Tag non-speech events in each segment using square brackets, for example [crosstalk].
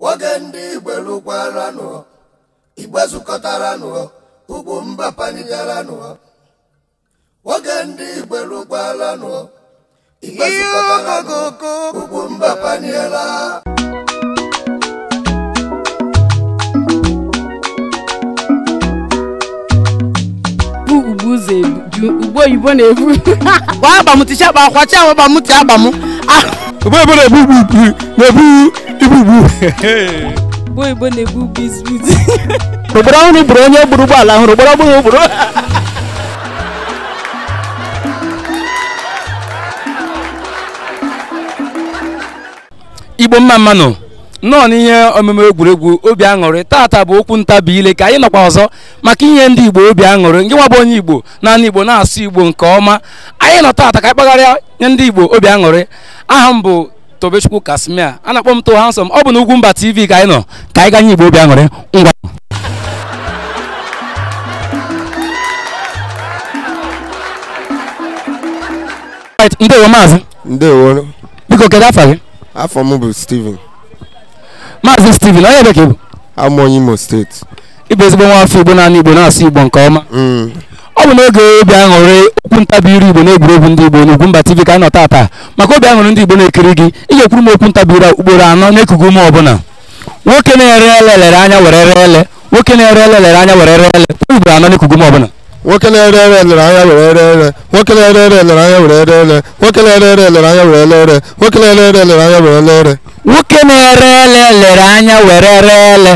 nwoke ndị igbelukwaaranụ igbe mba nwoke mba paniela ugbo oyibo na-ebu gbaa [laughs] agba m ticha agba kwacha boy boy dey boo boo boo dey boo ibu boo. boy boy dey boo biscuit. obodo ahụ bụrụ onye gburu ụgbọala ahụ obodo ọbụghị obodo. igbo mma mmanụ nnọọ n'ihe omume egwuregwu obi aṅụrị tata bụ okwu ntabi ile ka anyị nọkwa ọzọ maka inye ndị igbo obi aṅụrị nke nwa bụ onye igbo naanị igbo na-asụ igbo nke ọma anyị nọ tata ka anyị kpagharịa nye ndị igbo obi aṅụrị aha m bụ tobechukwu kasmia a na-akpọ m to ọ bụ na mba TV ka anyị nọ ka anyị ganye igbo obi aṅụrị ngwa ndewo maazị ndewo biko kedu afa gị afọ m bụ Steven Maazị Stephen onye bekee bụ amụọ Imo steeti ịbụ ezigbo nwa afọ Igbo naanị Igbo na-asụ Igbo nke ọma ọ bụ n'oge obi aṅụrị okwu ntabi iru Igbo n'egwuregwu ndị Igbo n'Ugwumba TV ka anyị nọ taata maka obi aṅụrị ndị Igbo na-ekiri gị ị ga-ekwuru m okwu ntabi iru ugboro anọ na-ekugo ume ọbụla nwoke na-ere ele lere anya were ele nwoke na-ere ele lere anya were ele ugboro anọ na-ekugo m ọbụla nwoke na-ere ere elere anya were ere ere nwoke na-ere ere elere anya were ere ere nwoke na-ere ere elere anya were ele ere nwoke na-ere ere elere anya were ele ere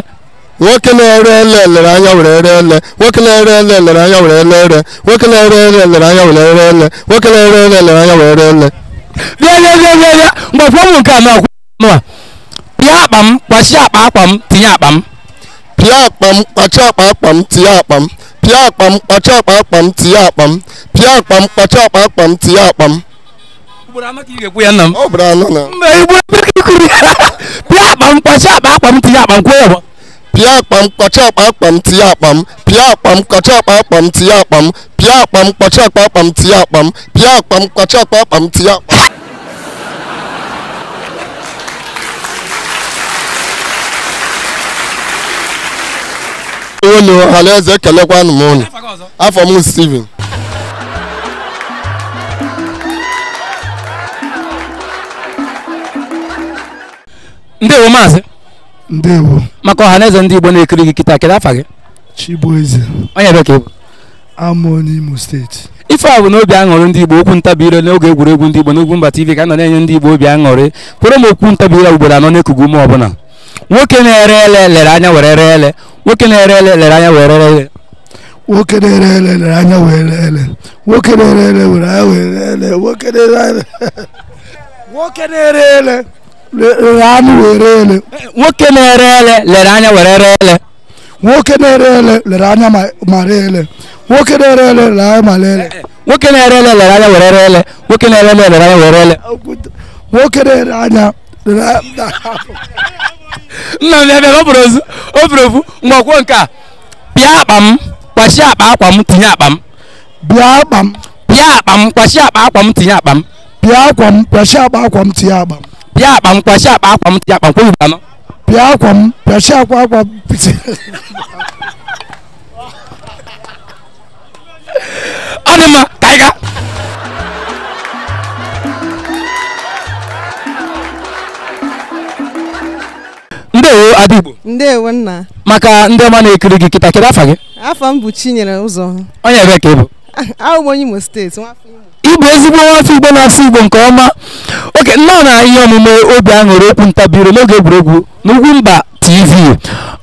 nwoke na-ere ele elere anya were ere ele nwoke na-ere ele elere anya were ere ele nwoke na-ere ele elere anya were ele ere nwoke na-ere ele elere anya were ere ele nwoke na-ere ele elere anya were ere ele bịa bịa bịa bịa bịa mgbakwuo m nke a ma kwuo pịa akpa m kpachi akpa akpa m tinye akpa m pịa akpa m kpachi akpa akpa m tinye akpa m pịa akpa m kpọcha akpa akpa m tinye akpa pịa akpa m tinye akpa pịa akpa m kpọcha akpa akpa m tinye akpa m pịa akpa m kpọcha akpa akpa m tinye akpa m pịa akpa m akpa ewelu ọhanaeze ekelekwanụ m ụnụ afọ m Steven ndewo maazị ndewo maka ọhanaeze ndị Igbo na-ekiri gị kịta kedu afa gị Chibueze onye ebe ka ịbụ amụọ steeti ife a bụ na obi aṅụrị ndị Igbo okwu ntabi ire n'oge egwuregwu ndị Igbo mba TV ka a nọ na-enye ndị Igbo obi aṅụrị kwere m okwu ntabi ire ugboro anọ na-ekugu ume ọbụla nwoke na-ere ele lere anya were ree ele nwoke na-ere ele lere anya were ree ele nwoke na-ere ele lere anya were ree ele nwoke na-ere ele were anya were ele nwoke na-ere ele nwoke na-ere ele lere anya were ele nwoke na-ere ele lere anya were ree ele nwoke na-ere ele lere anya ma ree ele nwoke na-ere ele lere anya ma ree ele nwoke na-ere ele lere anya were ree ele nwoke na-ere ele lere anya were ree ele nwoke na-ere anya lere anya nna m ya bịa o buru ofu mgbe ọkwuo nke a pịa akpa m kwachie akpa akwa m tinye akpa m bịa akpa m pịa akpa m kwachie akpa akwa m tinye akpa m pịa akwa m kwachie akpa akwa m tinye akpa m pịa akpa m kwachie akpa akwa m tinye akpa m kwụrụ anọ pịa akwa m kwachie akwa akwa m tinye akpa m ndewo nna maka ndị ọma na-ekiri gị kịta kedu afa gị afọ m bụ Chinyere Ụzọ onye ebe ka ịbụ [laughs] Imo steeti ịbụ ezigbo nwafọ Igbo na-asụ Igbo nke ọma oke nnọọ na ihe omume obi aṅụrị okwu ntabiro n'oge egwuregwu n'ugwu mba TV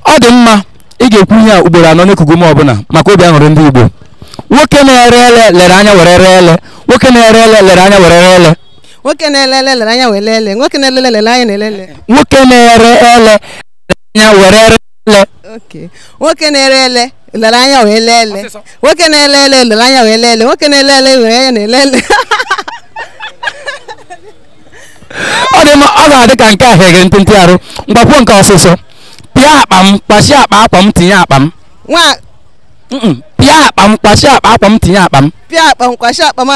ọ dị mma ị ga-ekwu ihe a ugboro anọ n'ekugo m ọbụla maka obi aṅụrị ndị Igbo nwoke na-ere ele lere anya were ele nwoke na-ere ele lere anya were ele nwoke na-ere ele lere anya were ele nwoke na-ere ele lere anya na ele. nwoke na-ere ele anya were ele nwoke na-ere ele lere anya wee lee ele nwoke na-ele ele lere anya wee lee ele nwoke na-ele ele were anya na-ele [laughs] ọ dị mma ọ ga-adị ka nke a heghere ntụntụ arụ mgbakwuo nke ọsịsọ pịa akpa m kpachie akpa akwa m tinye akpa m nwa pịa akpa m kpachie akpa akwa m tinye akpa m pịa akpa m kpachie akpa m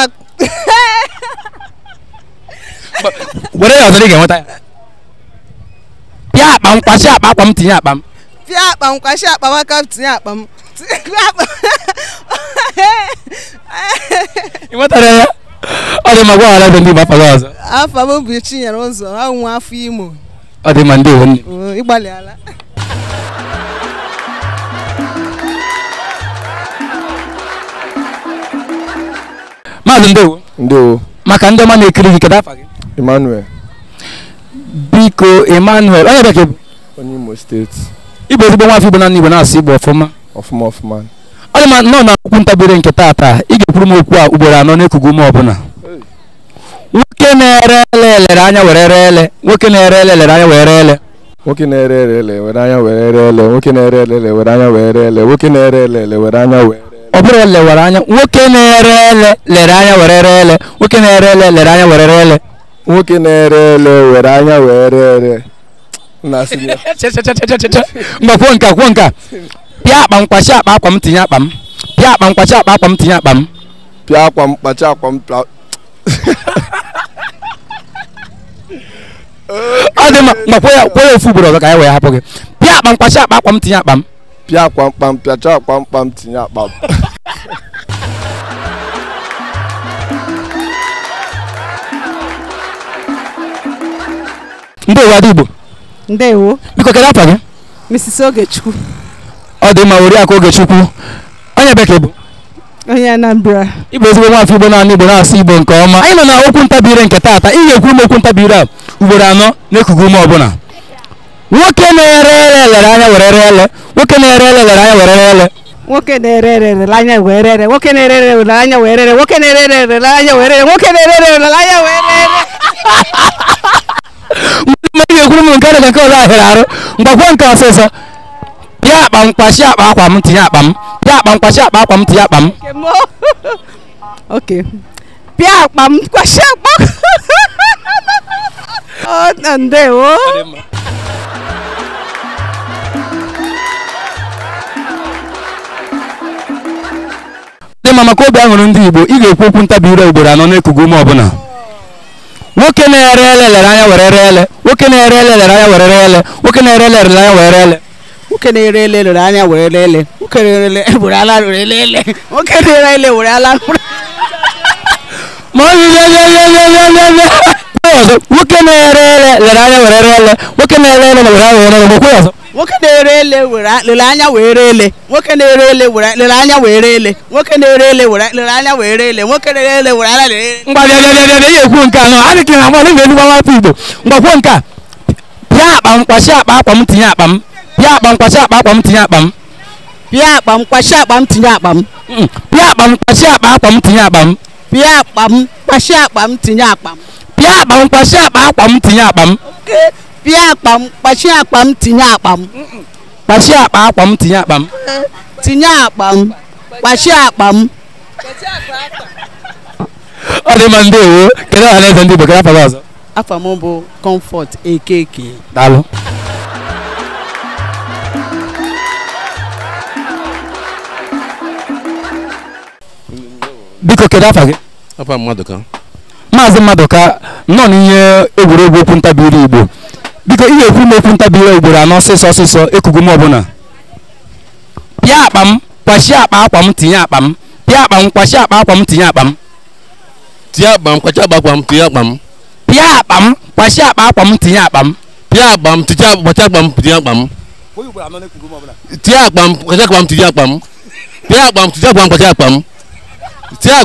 were ya ọzọ ị ga-enweta ya tie akpa m kwasị akpa akpa m tinye akpa m tie akpa m kwasị akpa m aka m tinye akpa m ị nwetara ya ọ dị mma gwaghara ebe ndị Igbo afa gị ọzọ afa m bụ Chinyere Ụzọ ahụ nwa afọ Imo ọ dị mma ndewo nne ịgbalịala maazị ndewo ndewo maka ndị ọma na-ekiri gị kedu afa gị Emmanuel biko emmanuel onye bekee onye imo steeti Ibe ezigbo nwa afọ igbo na igbo na-asụ igbo ọfụma ọfụma ọfụma ọ ma nọ na okwu ntabere nke taata ị ga-ekwuru m okwu a ugboro anọ na n'ekugo m ọbụla nwoke na-ere ele elere anya were ere ele nwoke na-ere ele elere anya were ele nwoke na-ere ele ele were anya were ere ele nwoke na-ere ele ele were anya were ere ele nwoke na-ere ele ele were anya were ọ bụrụ ele were anya nwoke na-ere ele lere anya were ere ele nwoke na-ere ele lere anya were ere ele nwoke na-ere ele were anya wee ree ere mba kwuo nka kwuo nka pịa akpa m kpachi akpa akwa m tinye akpa m pịa akpa [laughs] m kpachi akpa akwa m tinye akpa m pịa akwa m kpachi akwa m ọ dị mma mgba kwuo ya kwuo ya ofu ugboro [laughs] ọzọ ka anyị wee hapụ gị pịa akpa m kpachi akpa akwa m tinye akpa m pịa akwa mkpa m akwa mkpa m tinye m ndewo Adigbo ndewo biko kedu afa gị Mrs. Ogechukwu ọ dị mma Oriakụ Ogechukwu onye bekee bụ onye Anambra ịbụ ezigbo nwafọ Igbo naanị Igbo na-asụ Igbo nke ọma anyị nọ na okwu ntabire nke taata ga ekwu m okwu ntabire a ugboro anọ n'ekuku ume ọbụla nwoke na-ere ere elere anya were ere ele nwoke na-ere ere elere anya were ere ele nwoke na-ere ere elere anya were ere ele nwoke na-ere ere elere anya were ele. nwoke na-ere ere elere anya were ele. nwoke na-ere ere elere anya were ele mgbe m ga-ekwuru m nke dị ka nke ọzọ ahịrị arụ mgbakwuo nke ọsịsọ pịa akpa m akpa akwa m tinye akpa m pịa akpa m kpachi akpa akwa m tinye akpa m pịa akpa m kwashi akpa ọ ndewo dị mma maka obi aṅụrụ ndị Igbo ị ga-ekwu okwu ntabi ire ugboro anọ n'ekugo ume ọbụla nwoke na-ere ele lere anya were ree ele nwoke na-ere ele lere anya were ree ele nwoke na-ere ele lere anya were ree ele nwoke na-ere ele lere anya were ree ele nwoke na-ere ele were ala were ele ele nwoke na-ere ele were ala nwoke na-ere ele lere anya were ree ele nwoke na-ere ele lere anya were ree ele nwoke na-ere ele were anya were ele ere ele were lere anya were ere ele were ele nwoke ngwa ekwu nke a nọ na mmadụ ibe elu gbawa igbo nke a pịa akpa m akpa akpa m tinye tinye akpa m pịa akpa tinye akpa m pịa akpa tinye akpa m pịa tinye akpa m pịa akpa m tinye akpa m pie akpam kpachi akpam tinye akpam kpachi akpa akpam tinye akpam tinye akpam kpachi akpam ọ dị mma ndewo kedu aha na-eze ndị igbo afọ gị ọzọ afọ m bụ comfort ekeke daalụ biko kedu afọ gị afọ mmadụ ka maazị mmadụ ka nọ n'ihe egwuregwu okwu ntabi ilu igbo biko ihe ekwu m okwu ntabire ugboro anọ ọsịsọ ọsịsọ ekugu m ọbụla pịa akpa m kwachie akpa akwa m tinye akpa m pịa akpa m kwachie akpa akwa m tinye akpa m tinye akpa m kwachie akpa akwa m tinye akpa m pịa akpa m kwachie akpa akwa m tinye akpa m pịa akpa m tinye kwachie akpa m tinye akpa m tinye akpa m kwachie akpa m tinye akpa m pịa akpa m tinye akpa m kwachie akpa m tinye akpa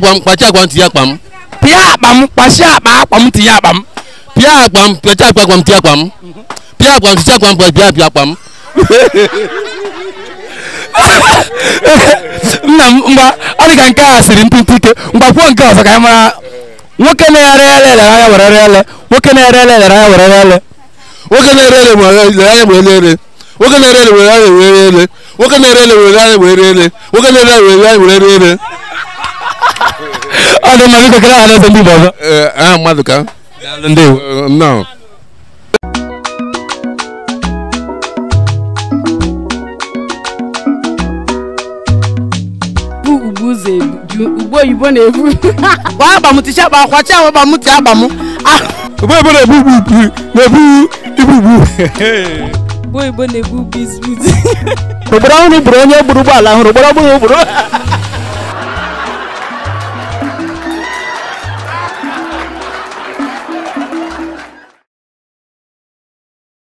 m kwachie akpa m tinye akpa m pịa akpa m kwachie akpa akwa m tinye akpa m bia akpam pɛtɛ akpam ti akpam bia akpam ti akpam bɔ bia bia akpam nna m mgba ọ dị ka nke a siri ntụtụ ike mgbakwuo nke ọzọ ka anyị mara nwoke na-ere ele elere anya were ere ele nwoke na-ere ele elere anya were ere ele nwoke na-ere ele were anya were ere nwoke na-ere ele were anya were ere nwoke na-ere ele were anya were ere nwoke na-ere ele were anya were ere ọ dị mma biko kere ha na-ese ndị ọzọ mmadụ ka Ndew eh, non. ugbo oyibo na-ebu gbaa [laughs] agba ticha agba akwacha awa agba m ti agba ah. ugbo oyibo na-ebu ugbu na-ebu ibu ugbu ugbo oyibo na-ebu ugbu izbut ogboro ọhụrụ gburu onye gburu ụgbọala hụrụ ogboro ọgbụrụ gburu [laughs]